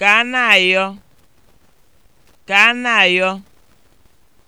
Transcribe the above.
ka a na-ayọ ka a na-ayọ